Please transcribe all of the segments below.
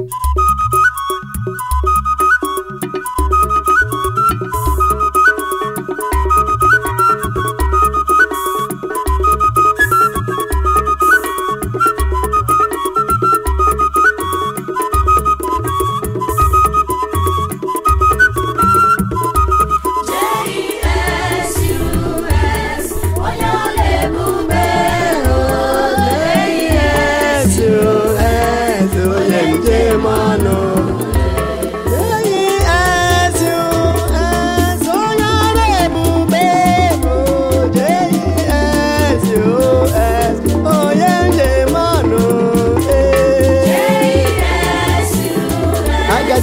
you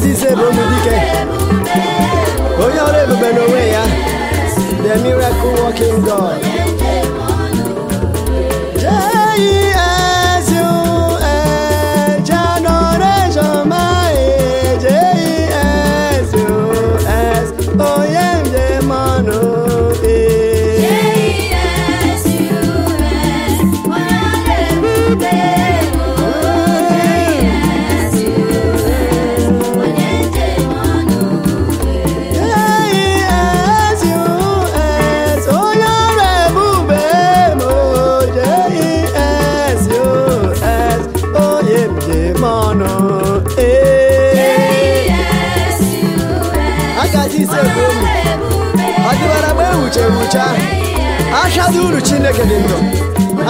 ezi ise bụ onye dike onye ọrụ ebube n'onwe ya the miracle working God ọnụ agazi ise bụ ọ e uru chineke dị ndụ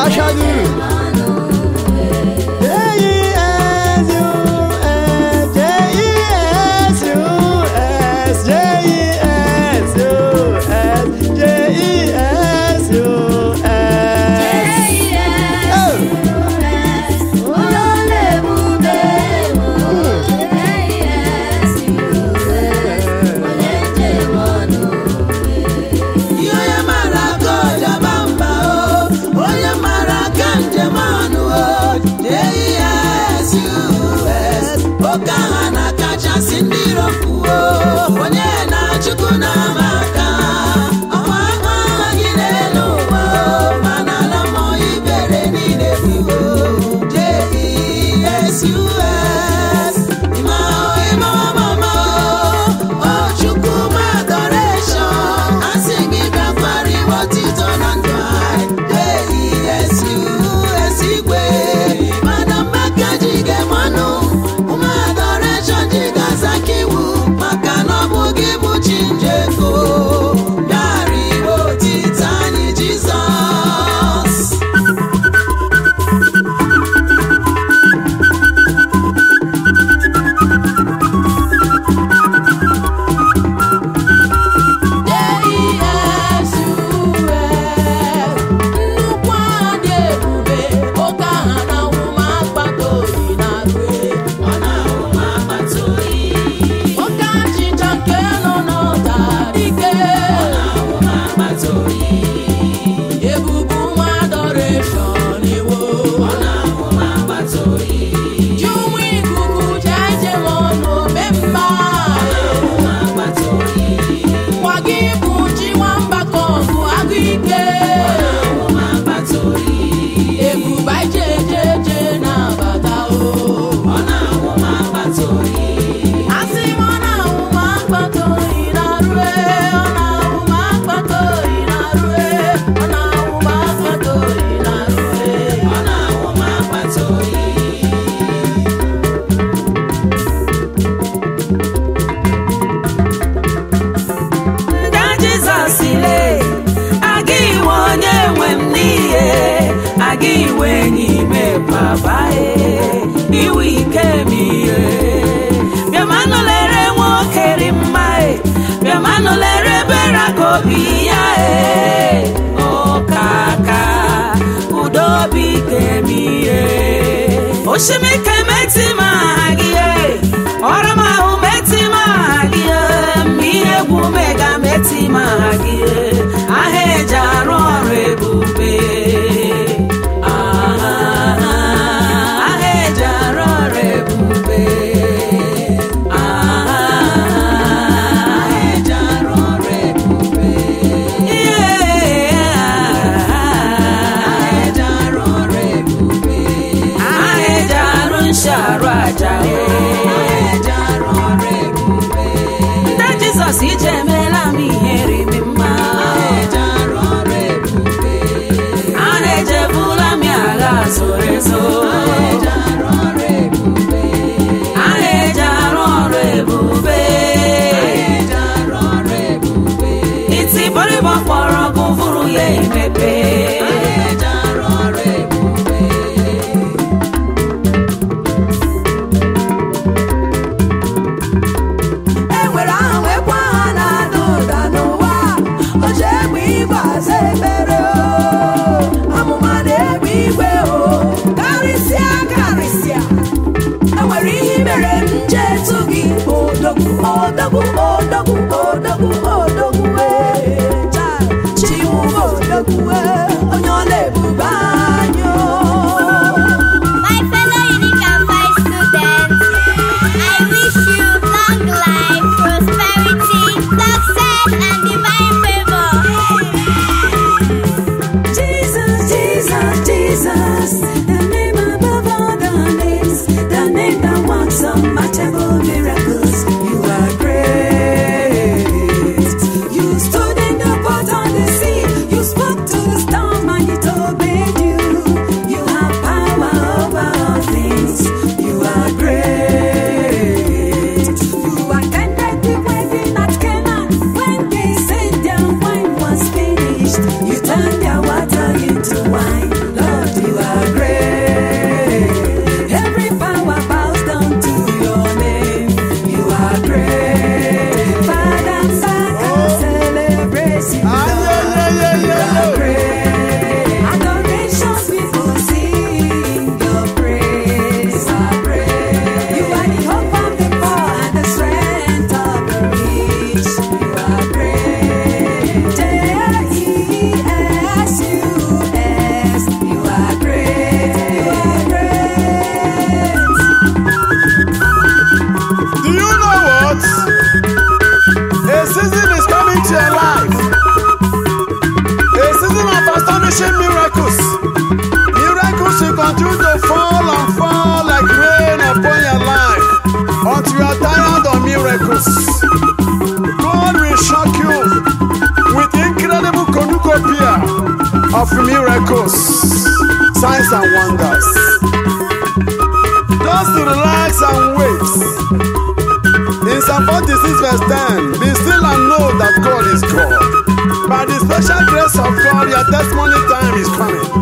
achadị uru gị iwe n'ime babae iwe ike m ihe bịamanụ lere nwoke dị mma e bịamanụ lere ebere ka obi ya e ọkaka udo obi ike m ihe ma gị you to fall on fall like rain upon your life until you are tired of miracles. God will shock you with incredible cornucopia of records, signs and wonders. Just relax and wait. In Psalm 46 verse 10, be still and know that God is God. By the special grace of God, your testimony time is coming.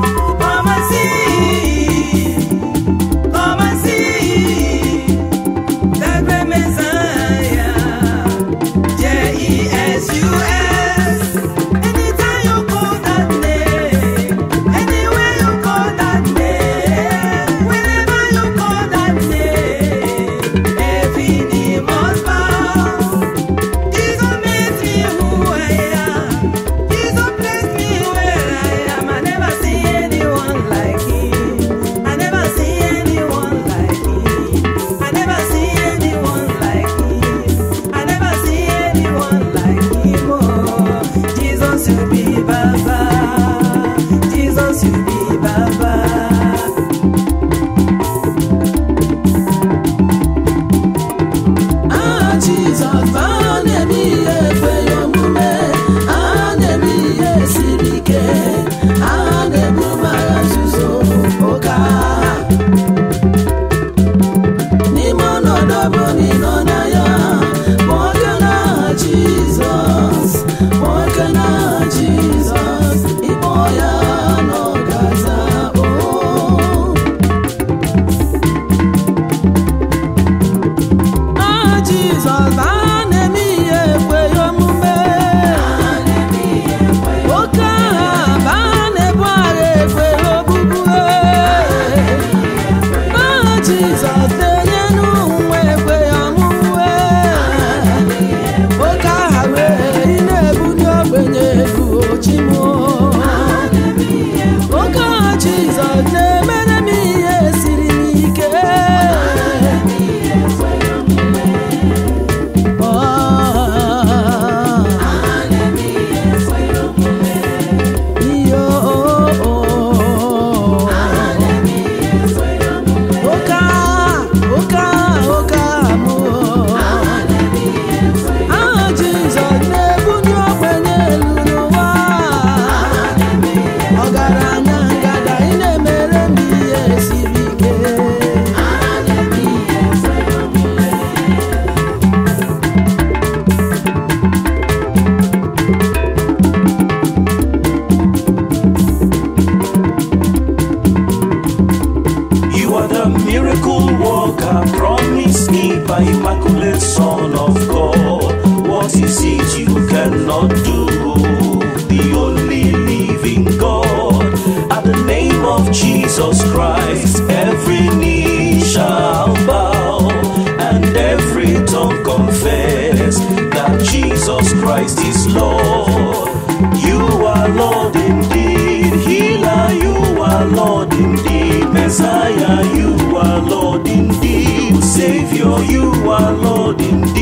the immaculate Son of God. What is it you cannot do? The only living God. At the name of Jesus Christ, every knee shall bow and every tongue confess that Jesus Christ is Lord. You are Lord indeed, Healer, you are Lord indeed, Messiah. you are Lord indeed.